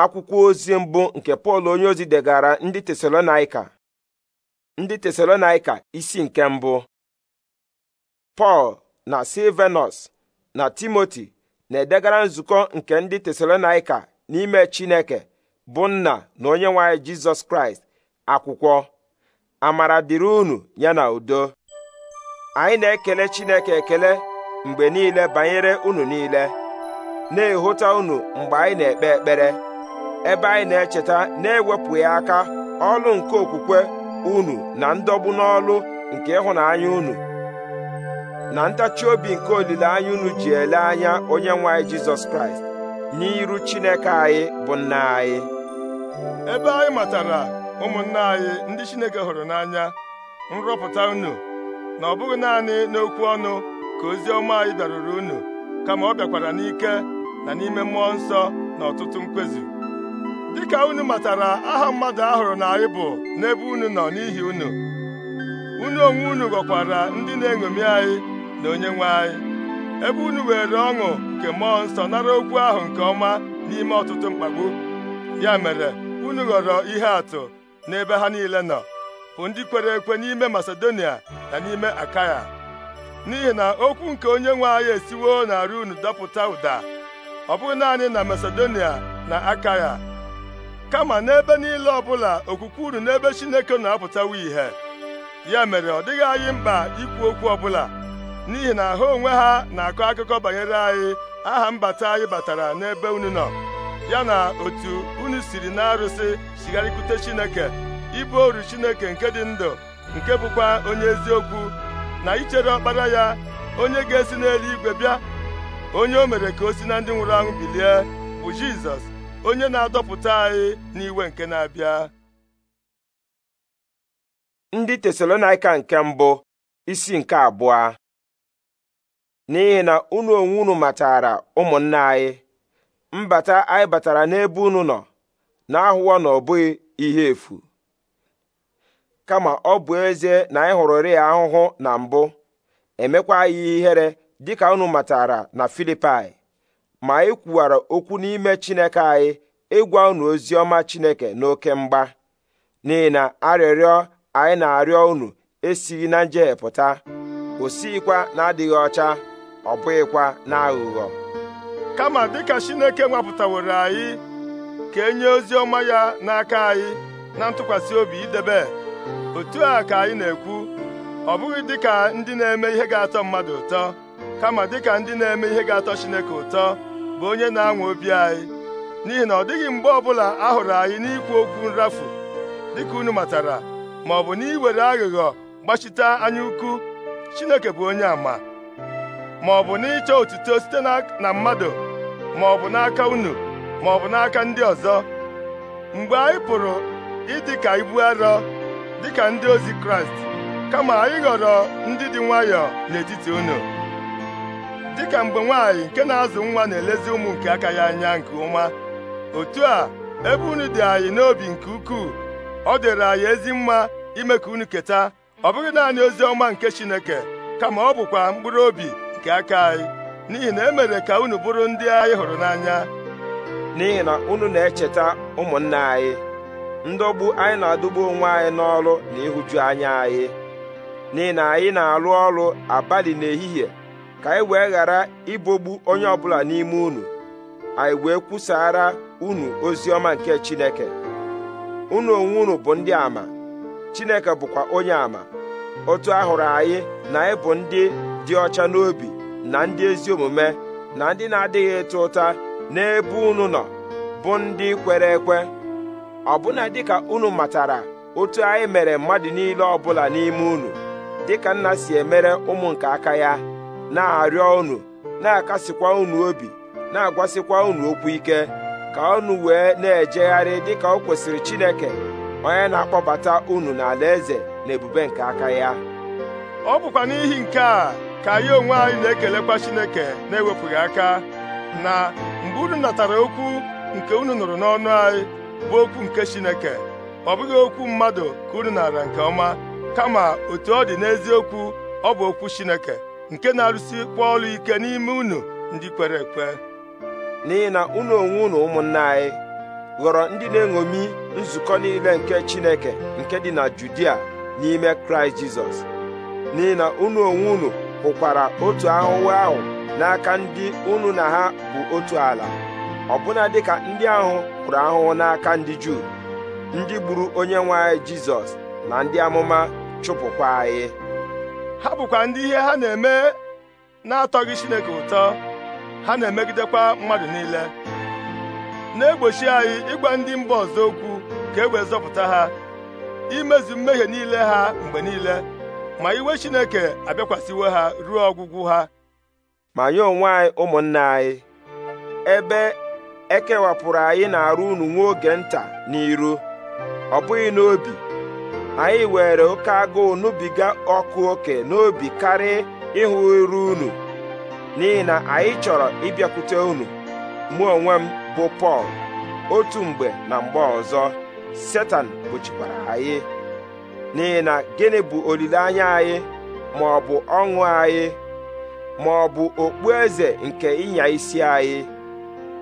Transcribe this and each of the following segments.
akwụkwọ ozi mbụ nke pọl onye ozi degara ndị tesalonaika ndị tesalonaika isi nke mbụ pọl na silvenus na timoti na-edegara nzukọ nke ndị tesalonaika n'ime chineke bụ nna na onye nwanyị jizọs kraịst akwụkwọ amara dịrị unu ya na udo anyị na-ekele chineke ekele mgbe niile banyere unu niile na-ehụta unu mgbe anyị na-ekpe ekpere ebe anyị na-echeta na-ewepụghị aka ọlụ nke okwukwe unu na ndọgbu n'ọlụ nke ịhụnanya unu na ntachi obi nke olileanya unu ji ele anya onye nwe anyị jizọs kraịst n'iru chineke anyị bụ nna anyị ebe anyị matara ụmụnna anyị ndị chineke hụrụ n'anya nrọpụta unu na ọ bụghị naanị n'okwu ọnụ ka ozi ọma anyị bịaruru unu kama ọ bịakwara n'ike na n'ime mmụọ nsọ na ọtụtụ mkpezi dịka unu matara aha mmadụ ahụrụ na anyị bụ n'ebe unu nọ n'ihi unu unu onwe unu ghọkwara ndị na-eṅomi anyị na onyenwe anyị ebe unu were ọṅụ nke mmụọ nsọ nara okwu ahụ nke ọma n'ime ọtụtụ mkpagbu ya mere unu ghọrọ ihe atụ n'ebe ha niile nọ bụ ndị kwere ekwe n'ime Masedonia na n'ime Akaya n'ihi na okwu nke onye nwe anyị esiwo na unu dọpụta ụda ọ bụghị naanị na Masedonia na Akaya kama n'ebe niile ọbụla okwukwe unu n'ebe Chineke na-apụtawa ìhè ya mere ọ dịghị anyị mkpa ikwu okwu ọbụla n'ihi na ha onwe ha na-akọ akụkọ banyere anyị aha mbata anyị batara n'ebe unu nọ ya na otu unu siri na-arụsị chigharịkwute Chineke ibu oru Chineke nke dị ndụ nke bụkwa onye eziokwu na ichere ọkpara ya onye ga-esi n'eluigwe bịa onye o mere ka o si na ndị nwụrụ anwụ bilie bụ Jizọs onye na-adọpụta anyị n'iwe nke na-abịa ndị tesalonaika nke mbụ isi nke abụọ n'ihi na unu onwe unu matara ụmụnna anyị mbata anyị batara n'ebe unu nọ na-ahụwa na ọ bụghị ihe efu kama ọ bụ ezie na anyị hụrụrị ya ahụhụ na mbụ emekwa anyị ihere dịka unu matara na Filipai ma e kwuwara okwu n'ime Chineke anyị ịgwa unu ozi ọma Chineke n'oke mgba n'ihi na arịrịọ anyị na-arịọ unu esighị na njehie pụta o na-adịghị ọcha ọ bụghịkwa na aghụghọ kama dịka Chineke nwapụtaworo anyị ka e nye ozi ọma ya n'aka anyị na ntụkwasị obi idebe otu a ka anyị na-ekwu ọ bụghị dịka ndị na-eme ihe ga-atọ mmadụ ụtọ kama dịka ndị na-eme ihe ga-atọ Chineke ụtọ bụ onye na-anwa obi anyị n'ihi na ọ dịghị mgbe ọbụla a hụrụ anyị n'ikwu okwu nrafu dịka unu matara ma ọ bụ n'iwere aghụghọ gbachite anya ukwu Chineke bụ onye àmà ma ọ bụ n'ịchọ otuto site na mmadụ ma ọ bụ n'aka unu ma ọ bụ n'aka ndị ọzọ mgbe anyị pụrụ ịdị ka ibu arọ dịka ndị ozi Kraịst kama anyị ghọrọ ndị dị nwayọọ n'etiti unu dịka mgbe nwaanyị nke na-azụ nwa na-elezi ụmụ nke aka ya anya nke ọma otu a ebe unu dị anyị n'obi nke ukwuu ọ dịrị anyị ezi mma ime ka unu keta ọ bụghị naanị ozi ọma nke Chineke kama ọ bụkwa mkpụrụ obi nke aka anyị n'ihi na emere ka unu bụrụ ndị anyị hụrụ n'anya n'ihi na unu na-echeta ụmụnne anyị ndọgbu anyị na-adọgbu onwe anyị n'ọrụ na ịhụju anya anyị n'ihi na anyị na-arụ ọrụ abalị n'ehihie ka anyị wee ghara ibogbu onye ọbụla n'ime unu anyị wee kwusara unu ozi ọma nke Chineke unu onwe unu bụ ndị ama Chineke bụkwa onye ama otu ahụrụ anyị na anyị bụ ndị dị ọcha n'obi na ndị ezi omume na ndị na-adịghị ịta ụta n'ebe unu nọ bụ ndị kwere ekwe ọbụna dịka unu matara otu anyị mere mmadụ niile ọbụla n'ime unu dịka nna si emere ụmụ nke aka ya na-arịọ unu na-akasikwa unu obi na-agwasikwa unu okwu ike ka unu wee na-ejegharị dịka o kwesịrị Chineke onye na-akpọbata unu n'ala eze na ebube nke aka ya ọ bụkwa n'ihi nke a ka anyị onwe anyị na-ekelekwa Chineke na-ewepụghị aka na mgbe unu natara okwu nke unu nụrụ n'ọnụ anyị bụ okwu nke Chineke ọ bụghị okwu mmadụ ka unu nara nke ọma kama otu ọ dị n'eziokwu ọ bụ okwu Chineke nke na-arụsikwa ọrụ ike n'ime unu ndị kwere ekwe n'ihi na unu onwe unu ụmụnna anyị ghọrọ ndị na-eṅomi nzukọ niile nke Chineke nke dị na Judia n'ime Kraịst Jizọs n'ihi na unu onwe unu hụkwara otu ahụhụ ahụ n'aka ndị unu na ha bụ otu ala ọbụna dịka ndị ahụ hụrụ ahụhụ n'aka ndị Juu ndị gburu onye nwe anyị Jizọs na ndị amụma chụpụkwa anyị ha bụkwa ndị ihe ha na-eme na-atọghị Chineke ụtọ ha na-emegidekwa mmadụ niile na-egbochi anyị ịgwa ndị mba ọzọ okwu ka e wee zọpụta ha imezu mmehie niile ha mgbe niile ma iwe Chineke abịakwasịwo ha ruo ọgwụgwụ ha ma nyo onwe anyị ụmụnna anyị ebe ekewapụrụ anyị na-arụ unu nwa oge nta n'iru ọ bụghị n'obi anyị were oke agụụ nubiga ọkụ oke n'obi karịa ịhụ iru unu n'ihi na anyị chọrọ ịbịakwute unu mụ onwe m bụ Pọl otu mgbe na mgbe ọzọ Setan gbochikwara anyị n'ihi na gịnị bụ olileanya anyị ma ọ bụ ọṅụ anyị ma ọ bụ okpu eze nke ịnya isi anyị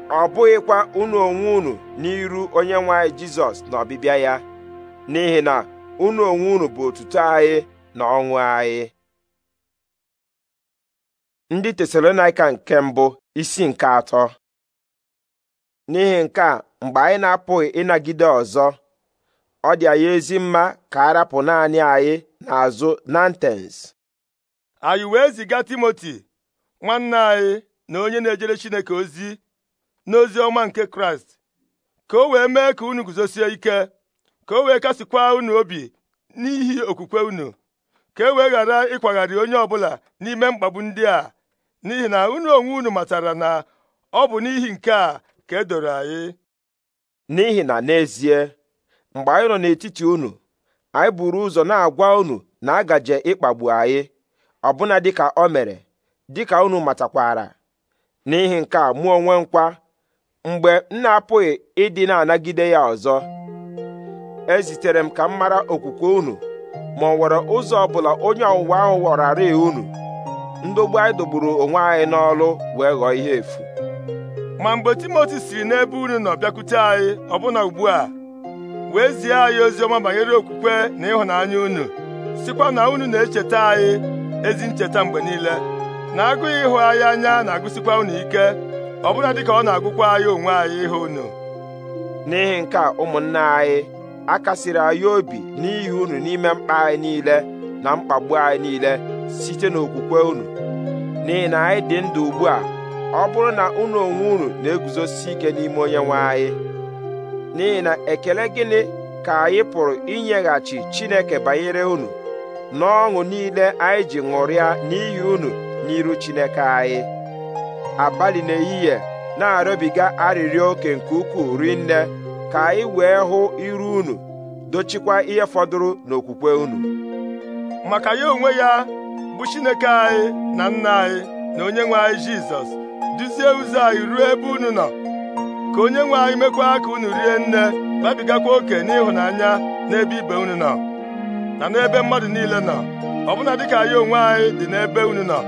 ọ bụghịkwa unu onwe unu n'iru onye nwe Jizọs na ọbịbịa ya n'ihi na unu onwe unu bụ otuto anyị na ọṅụ anyị ndị tesalonaika nke mbụ isi nke atọ n'ihi nke a mgbe anyị na-apụghị ịnagide ọzọ ọ dị anyị ezi mma ka a rapụ naanị anyị n'azụ ntens anyị wee ziga timoti nwanne anyị na onye na-ejere chineke ozi n'ozi ọma nke kraịst ka o wee mee ka unu guzosie ike ka o wee kasikwa unu obi n'ihi okwukwe unu ka e wee ghara ịkwagharị onye ọbụla n'ime mkpagbu ndị a n'ihi na unu onwe unu matara na ọ bụ n'ihi nke a ka e doro anyị n'ihi na n'ezie mgbe anyị nọ n'etiti unu anyị buru ụzọ na-agwa unu na agaje ịkpagbu anyị ọbụna dịka o mere dịka unu matakwara n'ihi nke a mụ onwe nkwa mgbe m na-apụghị ịdị na-anagide ya ọzọ ezitere m ka m mara okwukwe unu ma ọ nwere ụzọ ọbụla onye ọwụwa ahụ ghọrarị unu ndogbu anyị dogburu onwe anyị n'ọlụ wee ghọọ ihe efu ma mgbe timoti siri n'ebe unu nọ bịakwute anyị ọbụna ugbu a wee zie anyị ozi ọma banyere okwukwe na ịhụnanya unu sikwa na unu na-echeta anyị ezi ncheta mgbe niile na agụghị ịhụ anyị anya na-agụsikwa unu ike ọbụna dịka ọ na-agụkwa anyị onwe anyị ịhụ unu n'ihi nke a anyị a kasiri anyị obi n'ihi unu n'ime mkpa anyị niile na mkpagbu anyị niile site n'okwukwe unu n'ihi na anyị dị ndụ ugbu a ọ bụrụ na unu onwe unu na-eguzosi ike n'ime onye nwe anyị n'ihi na ekele gịnị ka anyị pụrụ inyeghachi Chineke banyere unu n'ọṅụ niile anyị ji ṅụrịa n'ihi unu n'iru Chineke anyị abalị n'ehihie na-arịọbiga arịrịọ oke nke ukwuu rinne ka anyị wee hụ iru unu dochikwa ihe fọdụrụ n'okwukwe unu maka ya onwe ya bụ Chineke anyị na nna anyị na onye nwe anyị Jizọs duzie ụzọ anyị ruo ebe unu nọ ka onye nwe anyị mekwa ka unu rie nne babigakwa oke n'ịhụnanya n'ebe ibe unu nọ na n'ebe mmadụ niile nọ ọbụna dịka anyị onwe anyị dị n'ebe unu nọ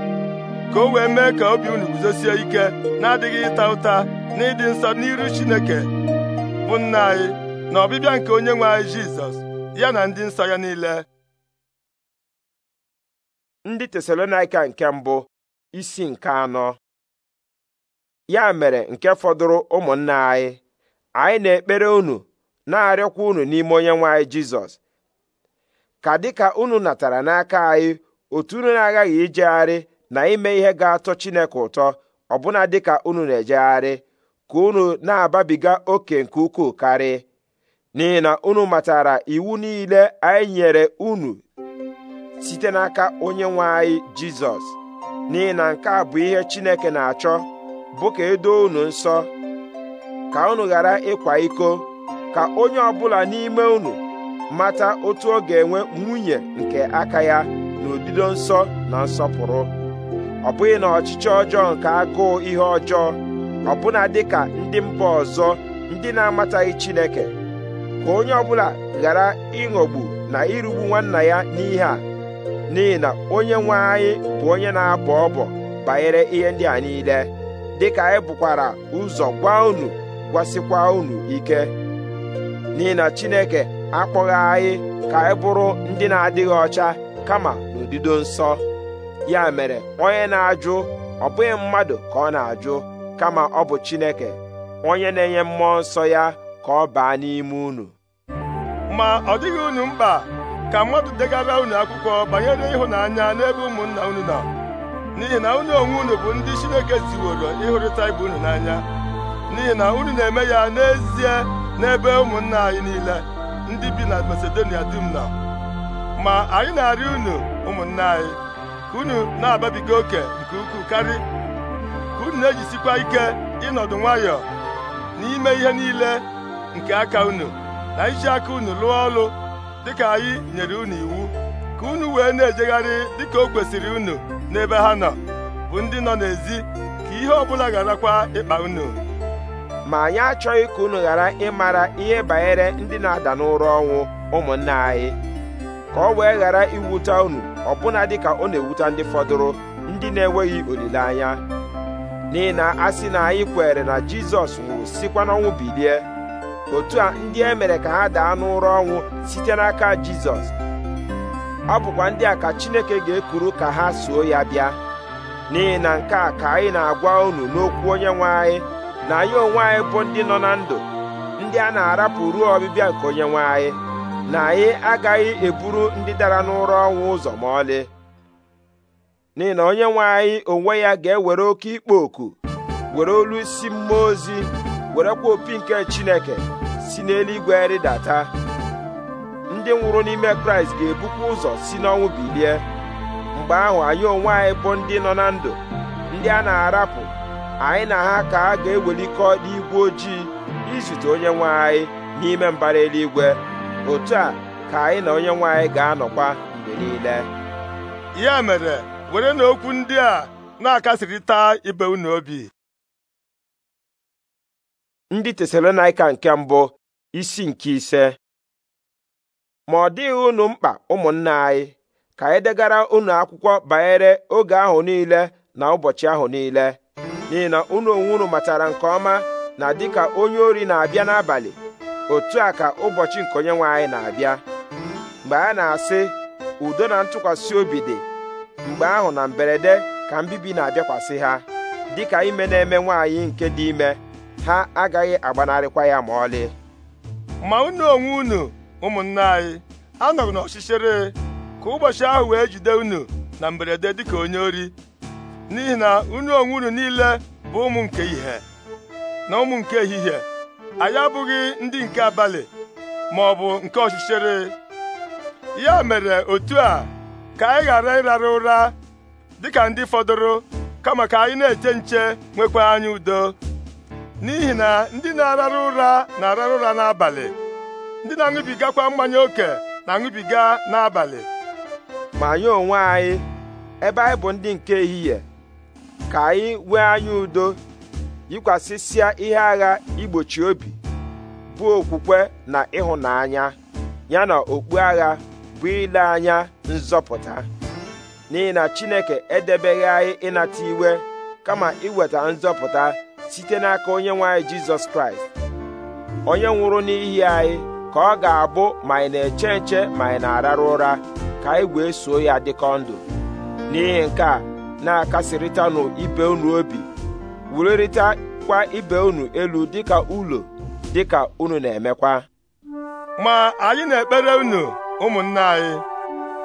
ka o wee mee ka obi unu guzosie ike na-adịghị ịta ụta na ịdị nsọ n'iru Chineke bụ nna anyị na ọbịbịa nke onye nwe anyị Jizọs ya na ndị nsọ ya niile ndị Tesalonaịka nke mbụ isi nke anọ ya mere nke fọdụrụ ụmụnna anyị anyị na-ekpere unu na-arịọkwa unu n'ime onye nwe anyị Jizọs ka dịka unu natara n'aka anyị otu unu na-aghaghị ijegharị na ime ihe ga-atọ Chineke ụtọ ọbụna dịka unu na-ejegharị ka unu na-ababiga oke nke ukwuu karị n'ihi na unu matara iwu niile anyị nyere unu site n'aka onye nwe anyị jizọs n'ihi na nke a bụ ihe chineke na-achọ bụ ka edo unu nsọ ka unu ghara ịkwa iko ka onye ọbụla n'ime unu mata otu ọ ga-enwe nwunye nke aka ya n'odido nsọ na nsọpụrụ ọ bụghị na ọchịchị ọjọọ nke agụụ ihe ọjọọ ọbụna dịka ndị mba ọzọ ndị na-amataghị Chineke ka onye ọbụla ghara ịghọgbu na irugbu nwanna ya n'ihe a n'ihi na onye nwe anyị bụ onye na-abọ ọbọ banyere ihe ndị a niile dịka anyị bụkwara ụzọ gwa unu gwasịkwa unu ike n'ihi na Chineke akpọghị anyị ka anyị bụrụ ndị na-adịghị ọcha kama n'udido nsọ ya mere onye na-ajụ ọ bụghị mmadụ ka ọ na-ajụ kama ọ bụ Chineke onye na-enye mmụọ nsọ ya ka ọ baa n'ime unu ma ọ dịghị unu mkpa ka mmadụ degara unu akwụkwọ banyere ịhụnanya n'ebe ụmụnna unu nọ n'ihi na unu onwe unu bụ ndị Chineke ziworo ịhụrịta ibe unu n'anya n'ihi na unu na-eme ya n'ezie n'ebe ụmụnna anyị niile ndị bi na Masedonia dum nọ ma anyị na arị unu ụmụnna anyị ka unu na-ababiga oke nke ukwuu karị unu na-ejisikwa ike ịnọdụ nwayọọ n'ime ihe niile nke aka unu na iji aka unu lụọ ọrụ dịka anyị nyere unu iwu ka unu wee na-ejegharị dịka o kwesịrị unu n'ebe ha nọ bụ ndị nọ n'ezi ka ihe ọbụla gharakwa ịkpa unu ma anyị achọghị ka unu ghara ịmara ihe banyere ndị na-ada n'ụra ọnwụ ụmụnna anyị ka ọ wee ghara iwute unu ọbụna dịka ọ na-ewute ndị fọdụrụ ndị na-enweghị olileanya n'ihi na a sị na anyị kwere na jizọs nwụrụ sikwa n'ọnwụ bilie otu a ndị e mere ka ha daa n'ụra ọnwụ site n'aka jizọs ọ bụkwa ndị a ka chineke ga-ekuru ka ha soo ya bịa n'ihi na nke a ka anyị na-agwa unu n'okwu onye nwe anyị na anyị onwe anyị bụ ndị nọ na ndụ ndị a na-arapụ ruo ọbịbịa nke onye nwe anyị na anyị agaghị eburu ndị dara n'ụra ọnwụ ụzọ ma ọlị n'ihi na onye nwe onwe ya ga-ewere oke ikpo oku were olu isi mmụọ ozi werekwa opi nke chineke si n'eluigwe rịdata ndị nwụrụ n'ime kraịst ga-ebukwa ụzọ si n'ọnwụ bilie mgbe ahụ anyị onwe anyị bụ ndị nọ na ndụ ndị a na-arapụ anyị na ha ka a ga-ewelikọ n'igwe ojii izute onye nwe anyị n'ime mbara eluigwe otu a ka anyị na onye nwe ga-anọkwa mgbe niile ya mere were na okwu ndị a na-akasịrịta ibe unu obi ndị Tesalonaika nke mbụ isi nke ise ma ọ dịghị unu mkpa ụmụnna anyị ka anyị degara unu akwụkwọ banyere oge ahụ niile na ụbọchị ahụ niile n'ihi na unu onwe matara nke ọma na dịka onye ori na-abịa n'abalị otu a ka ụbọchị nke onye nwe anyị na-abịa mgbe a na-asị udo na ntụkwasị obi dị mgbe ahụ na mberede ka mbibi na-abịakwasị ha dịka ime na-eme nwaanyị nke dị ime ha agaghị agbanarịkwa ya ma ọlị ma unu onwe unu ụmụnne anyị anọghị n'ọchịchịrị ka ụbọchị ahụ wee jide unu na mberede dịka onye ori n'ihi na unu onwe unu niile bụ ụmụ nke ihe na ụmụ nke ehihie anyị abụghị ndị nke abalị ma bụ nke ọchịchịrị ya mere otu a ka anyị ghara ịrara ụra dịka ndị fọdụrụ kama ka anyị na-eche nche nwekwa anyị udo n'ihi na ndị na-arara ụra na-arara ụra n'abalị ndị na-aṅụbigakwa mmanya ókè na-aṅụbiga n'abalị ma anyị onwe anyị ebe anyị bụ ndị nke ehihie ka anyị nwee anya udo yikwasịsịa ihe agha igbochi obi bụ okwukwe na ịhụnanya ya na okpu agha bụ ile anya nzọpụta n'ihi na chineke edebeghị anyị ịnata iwe kama iweta nzọpụta site n'aka onye nwe jizọs kraịst onye nwụrụ n'ihi anyị ka ọ ga-abụ ma ị na-eche nche ma ị na-ararụ ụra ka anyị wee soo ya dịkọ ndụ n'ihi nke a na-akasịrịtanụ ibe unu obi kwa ibe unu elu dịka ụlọ dịka unu na-emekwa ma anyị na-ekpere unu ụmụnne anyị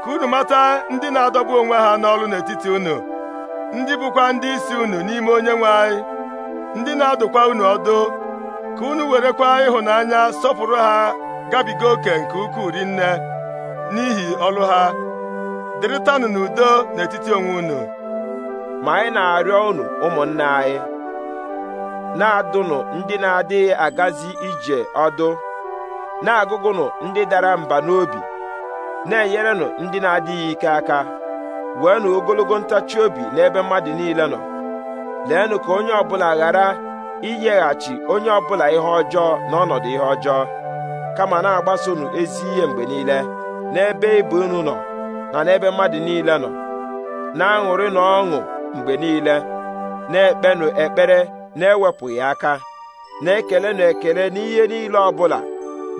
ka unu mata ndị na-adọgbu onwe ha n'ọrụ n'etiti unu ndị bụkwa ndị isi unu n'ime onye nwe anyị ndị na-adụkwa unu ọdụ ka unu werekwa ịhụnanya sọpụrụ ha gabiga oke nke ukwuu rinne n'ihi ọrụ ha dịrịtanụ n'udo n'etiti onwe unu ma anyị na-arịọ unu ụmụnne anyị na-adụnụ ndị na-adịghị agazi ije ọdụ na-agụgụnụ ndị dara mba n'obi na-enyerenụ ndị na-adịghị ike aka weenụ ogologo ntachi obi n'ebe mmadụ niile nọ leenụ ka onye ọbụla ghara inyeghachi onye ọbụla ihe ọjọọ n'ọnọdụ ihe ọjọọ kama na agbasonụ ezi ihe mgbe niile n'ebe ibu unu nọ na n'ebe mmadụ niile nọ na-aṅụrị na ọṅụ mgbe niile na-ekpenụ ekpere na-ewepụghị aka na-ekele na ekele n'ihe niile ọbụla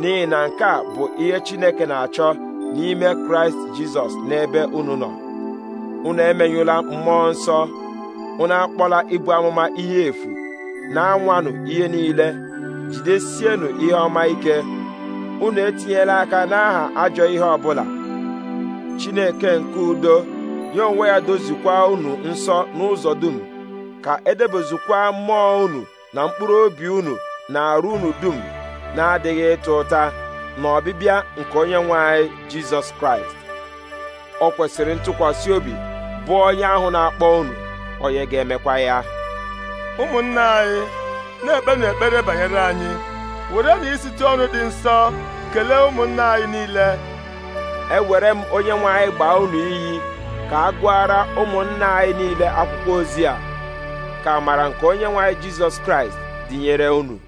n'ihi na nke a bụ ihe Chineke na-achọ n'ime kraịst jizọs n'ebe unu nọ unu emenyụla mmụọ nsọ unu akpọla ibu amụma ihe efu na-anwanụ ihe niile jidesienụ ihe ọma ike unu etinyela aka n'aha ajọ ihe ọbụla chineke nke udo ya onwe ya dozikwa unu nsọ n'ụzọ dum ka edebezikwa mmụọ unu na mkpụrụ obi unu na arụ unu dum na-adịghị ịta ụta na ọbịbịa nke onye nwe anyị jizọs kraịst ọ kwesịrị ntụkwasị obi bụ onye ahụ na-akpọ unu onye ga-emekwa ya ụmụnna anyị na-ekpenụ ekpere banyere anyị were na isite ọnụ dị nsọ kelee ụmụnna anyị niile ewere m onye nwe anyị gbaa unu iyi ka a gụara ụmụnna anyị niile akwụkwọ ozi a ka amara nke onye nwe anyị jizọs kraịst dịnyere unu